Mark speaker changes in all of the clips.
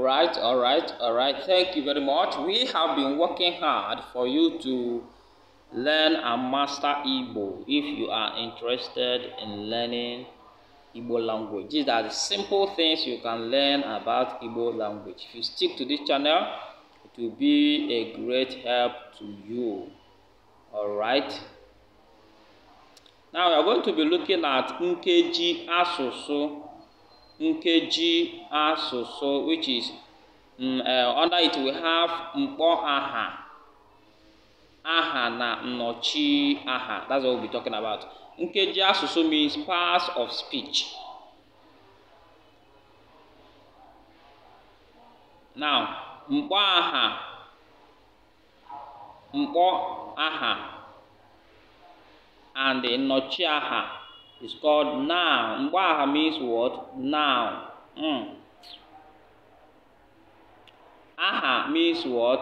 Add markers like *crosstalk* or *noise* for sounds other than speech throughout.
Speaker 1: right, all right, all right. Thank you very much. We have been working hard for you to learn and master Igbo if you are interested in learning Igbo language. These are the simple things you can learn about Igbo language. If you stick to this channel, it will be a great help to you. All right. Now we are going to be looking at Nkeji Asusu. nkeji asụsụ which is um, uh, under it we have mkpọ aha aha na nnọchi aha that's what we'll be talking about nkeji asụsụ means parts of speech now mkpọ aha mkpọ aha and nnọchi aha It's called now. Mbaha means what? Now. Mm. Aha means what?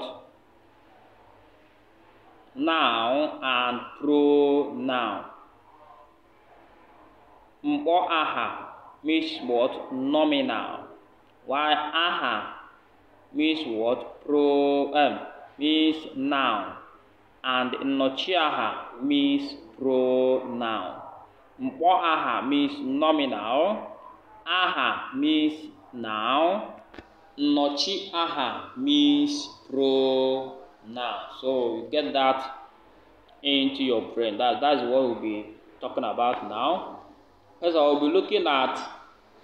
Speaker 1: Now and pronoun. Mbo aha means what? Nominal. While aha means what? Pro um, means noun. And nochiaha means pronoun. Mpo aha means nominal. Aha means noun. Nochi aha means pronoun. So you get that into your brain. That, that's what we'll be talking about now. First I'll we'll be looking at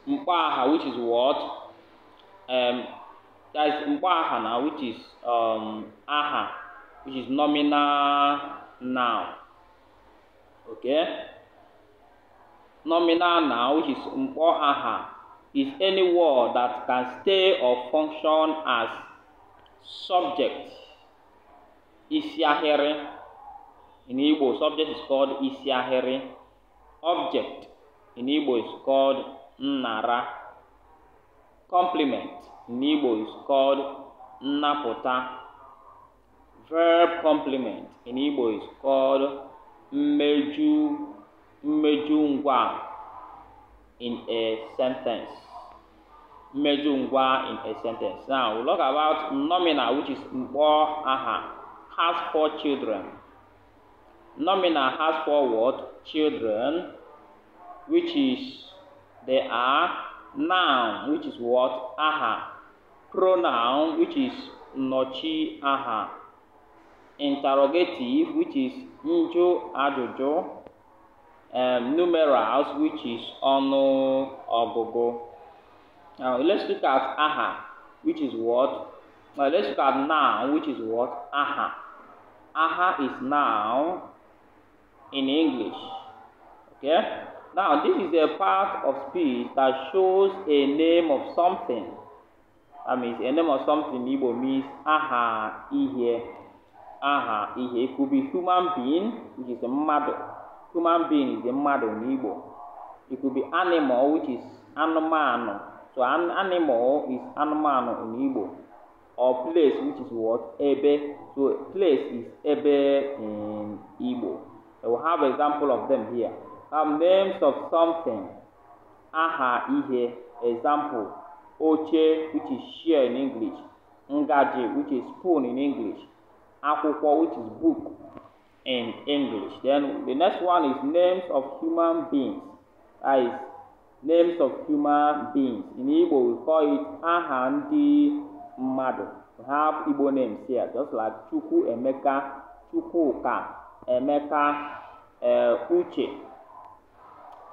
Speaker 1: Mpaha, which is what? Um, that's Mpaha now, which is um, aha, which is nominal noun. Okay? Nominal noun is mpoaha, is any word that can stay or function as subject. Isiahere. In Igbo, subject is called isiahere. Object. In Igbo is called nara. Complement. In Igbo is called napota. Verb complement. In Igbo is called meju. mmeju ngwa in a sentence. Mmeju ngwa in a sentence. Now, we we'll talk about nominal, which is mbo aha, has four children. Nominal has four what? Children, which is they are noun, which is what? Aha. Pronoun, which is nochi aha. Interrogative, which is njo ajojo um, numerals, which is ọnụ ọgụgụ. Now, let's look at aha, which is what? Now, let's look at noun, which is what? Aha. Aha is noun in English. Okay? Now, this is a part of speech that shows a name of something. That means a name of something Igbo means aha ihe. Aha ihe. It could be human being, which is a mother human being dị mmadụ n'Igbo it could be animal which is anụmanụ so animal is anụmanụ n'Igbo or place which is what ebe so place is ebe in Igbo I will have example of them here um, names of something aha ihe example oche which is chair in English ngaji which is spoon in English akwụkwọ which is book in English. Then the next one is names of human beings. That is names of human beings. In Igbo, we call it Ahandi Madu. We have Igbo names here, just like Chuku Emeka, Chukuka, Emeka, uh, Uche,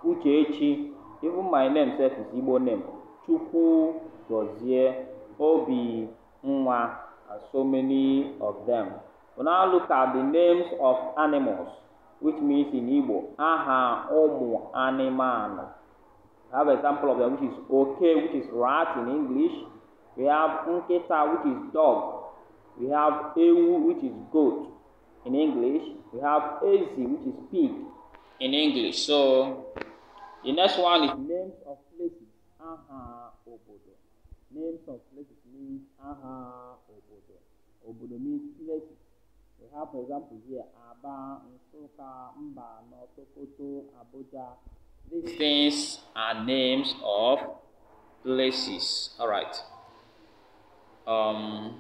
Speaker 1: Uchechi. Even my name self is Igbo name. Chuku Gozie, Obi Nwa, and so many of them. We now look at the names of animals, which means in Igbo, aha, omu, animal. We have example of them, which is okay, which is rat in English. We have nketa, which is dog. We have ewu, which is goat in English. We have ezi, which is pig in English. So, the next one is names of places, aha, obodo. Names of places means aha, obodo. Obodo means places have, for example, here Aba, Nsoka, Mbano, Sokoto, Abuja. These things are names of places. All right. Um,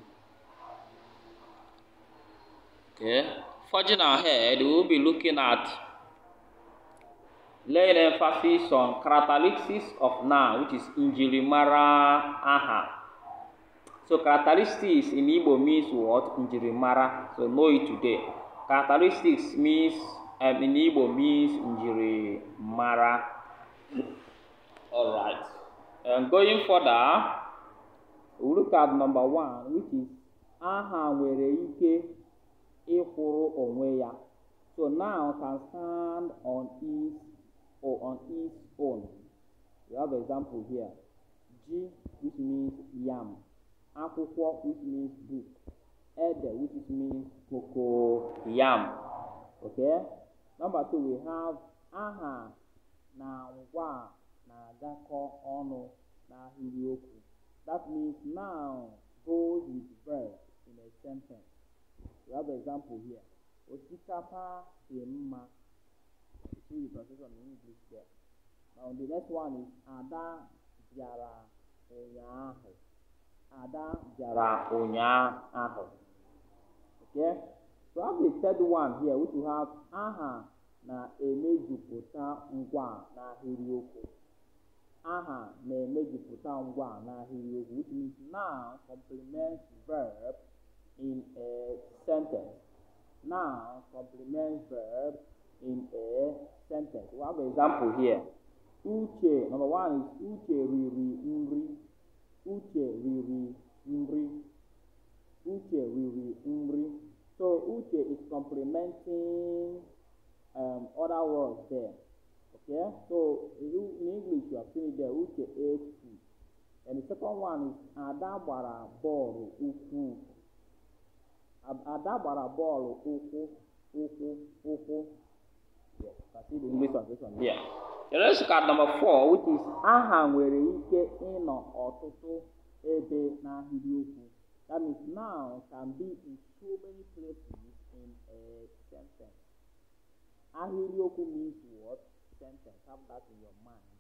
Speaker 1: okay. Forging ahead, we will be looking at laying emphasis on characteristics of Na, which is Injilimara Aha. So characteristics in Igbo means what? Njirimara. So know it today. Characteristics means um, in Igbo means Njirimara. All right. And going further, we look at number one, which is aha nwere ike ịkwụrụ onwe So now can stand on its or on its own. We have example here. G, which means yam. akwụkwọ which means book ede which is means cocoyam okay number two we have aha na ngwa na-agakọ ọnụ n'ahịrịokwu that means now goes with verb in a sentence we have example here osikapa dị mma see the translation in english there now the next one is ada bịara ụnyaahụ Ada bịara ụnyaahụ. Okay? So I have the third one here which we have aha na-emejupụta ngwa n'ahịrịokwu. Aha na-emejupụta ngwa n'ahịrịokwu which means noun complements verb in a sentence. Noun complements verb in a sentence. We have an example here. Uche, number one is Uche riri nri. uche riri mri. Uche riri mri. So uche is complementing um, other words there. Okay, so in English you have seen it there, uche ate food. And the second one is adabara bọọlụ ukwu. Adabara bọọlụ ukwu, ukwu, ukwu. Yes, I see the English translation. Yeah. Let's look at number four, which is aha nwere ike ịnọ ọtụtụ ebe n'ahịrịokwu. That means now can be in so many places in a sentence. Ahịrịokwu means what? Sentence. Have that in your mind.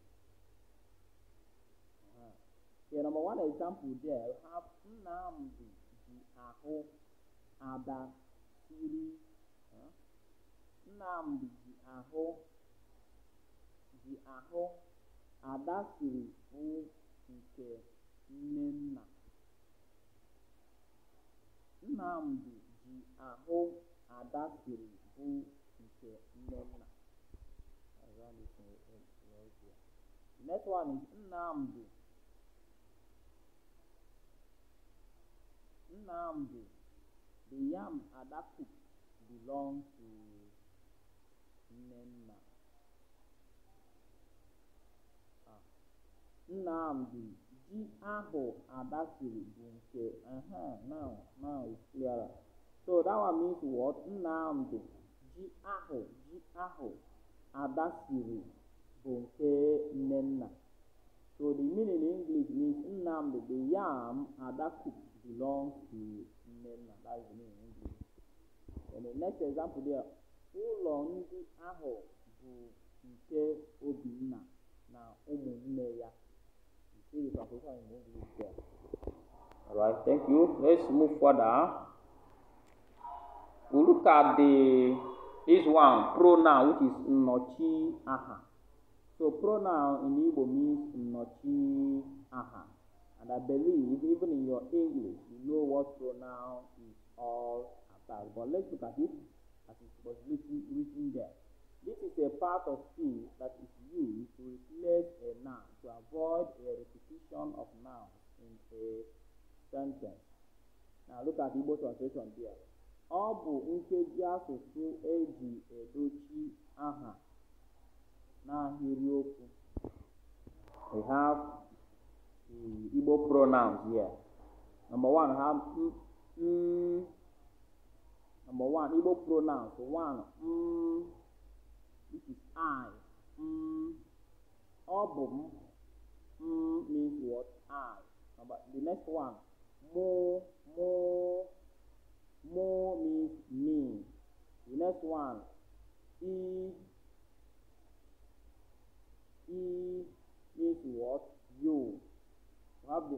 Speaker 1: Uh-huh. Yeah, number one example there, you have Nnamdi ji ahụ ada siri. Nnamdi ji ahụ ahụ Ada siri bụ nke Nnenna. Nnamdị ji ahụ Ada siri bụ nke Nnenna. Next one is Nnamdị. Nnamdị, the yam Ada cooked belong to Nnenna. Nnamdi ji ahụ Ada bụ nke uh uh-huh, now, now is clearer. So that one means what? Nnamdi ji ahụ ji ahụ adasiri siri bụ nke Nnenna. So the meaning in English means Nnamdi, the yam Ada belong belongs to Nnenna. That is the meaning in English. And the next example there, ụlọ ndị ahụ bụ nke All right, thank you. Let's move further. We look at the this one pronoun which is nochi aha. So pronoun in Igbo means nochi aha. And I believe even in your English you know what pronoun is all about. But let's look at it as it was written, written there. This is a part of speech that is used look at Igbo translation there. Ọ bụ nkeji asụsụ eji edochi aha n'ahịrịokwu. We have Igbo pronouns here. Number one, ha mm, mm, number one, Igbo pronouns. One, mm, is I. ọ bụ m, mm means what? I. Number, the next one, more, more, more means me. The next one, e, e means what? You. have the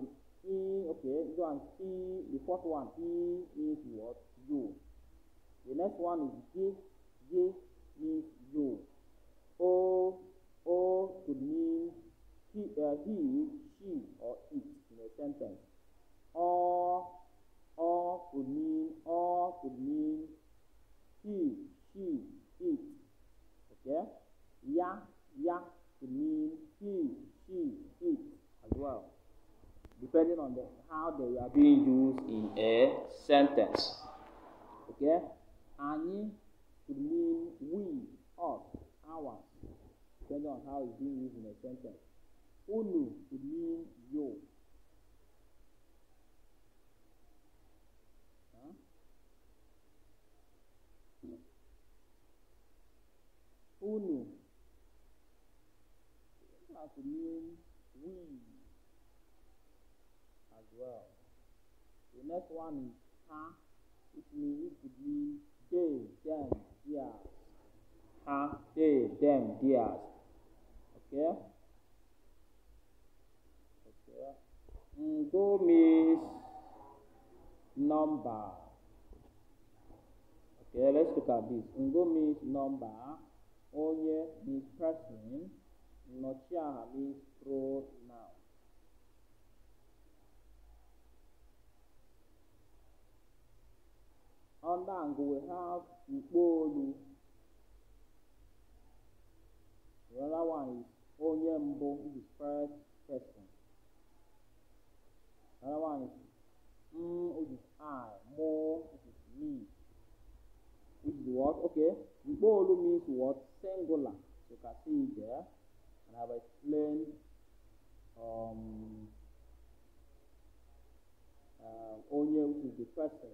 Speaker 1: e, okay, go and e, the fourth one, e means what? You. The next one is J, J means you. O, O could mean he, uh, he, she, or it in a sentence or, or could mean, or could mean he, she, it. Okay? Ya, ya could mean he, she, it as well. Depending on the, how they are being used in a sentence. Okay? Any could mean we, us, our, depending on how it's being used in a sentence. Unu could mean you. to mean we as well. The next one is ha, which means it could be they, them, theirs. Ha, they, them, theirs. Okay? Okay. Ndo mm, means number. Okay, let's look at this. Ngo mm, means number. Onye means person. Nochiaha means pronoun. Ondang we have Ikbolu. The other one is Onyembo, which is first person. The other one is M, which is I, Mo, which is me. Which is what? Okay. Ikbolu means what? Singular. So you can see there and I've explained um, uh, onye which is the person,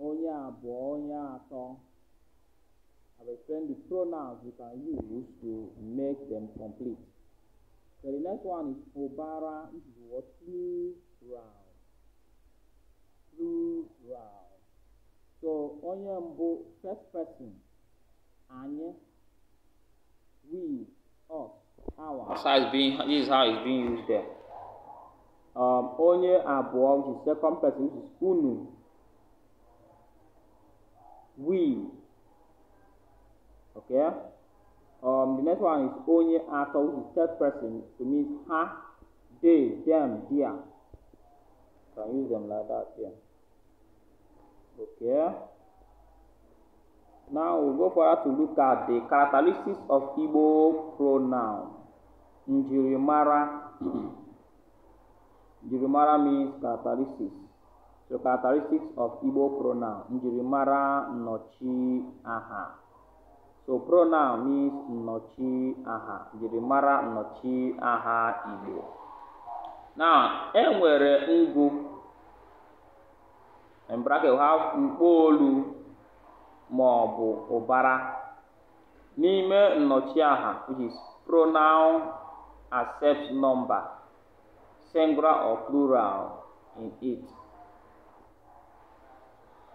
Speaker 1: onye abụọ, onye atọ. I've explained the pronouns you can use to make them complete. So the next one is obara, which is what plural. Plural. So onye mbụ, first person, anye we, us, our. That's is being, this is how it's being used there. Um, onye abụọ, which is second person, which is unu. We. Okay? Um, the next one is onye atọ, which is third person. It means ha, they, them, their. Can use them like that Yeah. Okay? Now we go go further to look at the characteristics of Igbo pronoun. Njirimara. Njirimara *clears throat* means characteristics. So characteristics of Igbo pronoun. Njirimara nochi aha. So pronoun means nochi aha. Njirimara nochi aha Igbo. Now, enwere ngu In bracket we have mkpolu. ma ọ bụ ụbara. N'ime nnọchiaha which is pronoun accept number, singular or plural in it.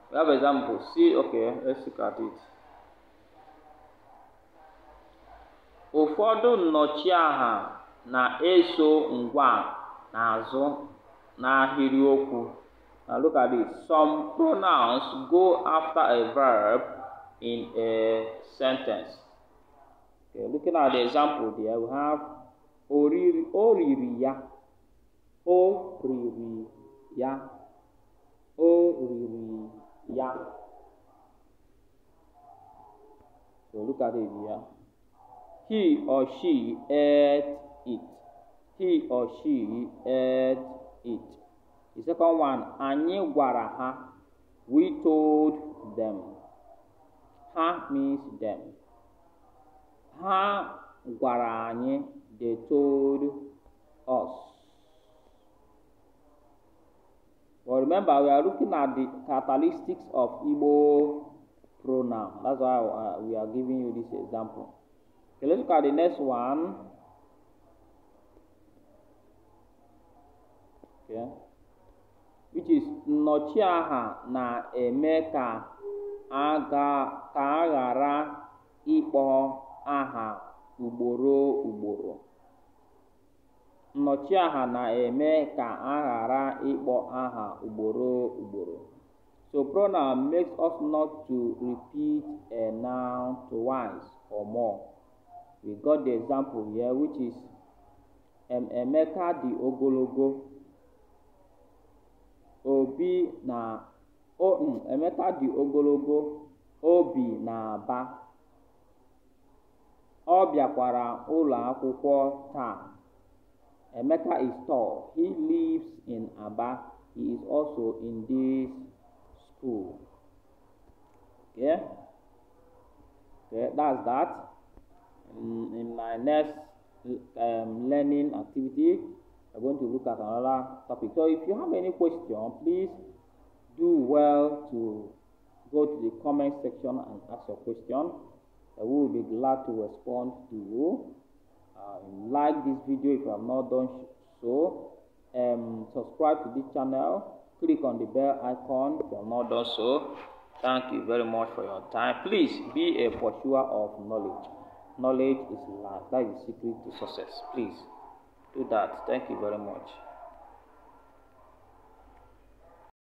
Speaker 1: We have example. See, okay, let's look at it. Ụfọdụ nnọchiaha na-eso ngwa n'azụ n'ahịrịokwu. Now look at this. Some pronouns go after a verb in a sentence. Okay, looking at the example there, we have oriri, oririya, oririya, oririya. So look at it here. He or she ate it. He or she ate it. The second one, Anyị gwara ha. We told them. Ha means them. Ha gwara anyị. They told us. But remember, we are looking at the characteristics of Igbo pronoun. That's why uh, we are giving you this example. Okay, let's look at the next one. Okay. Ichis nnọchiaha na-eme ka a ghara ịkpọ aha ugboro ugboro. Nnọchiaha na-eme ka a ghara ịkpọ aha ugboro ugboro. So pronoun makes us not to repeat a noun twice or more. We got the example here which is um Emeka di ogologo. Obi na um, Emeka dị ogologo, o bi aba ọ bịakwara ụlọ akwụkwọ taa. Emeka is tall, he lives in Aba, he is also in this school. Okay? Okay, that's that. In, in my next um, learning activity, are going to look at another topic. So if you have any question, please do well to go to the comment section and ask your question. I will be glad to respond to you. Uh, like this video if you have not done so. Um, subscribe to this channel. Click on the bell icon if you have not done so. Thank you very much for your time. Please be a pursuer of knowledge. Knowledge is life. That is the secret to success. Please. do that. Thank you very much.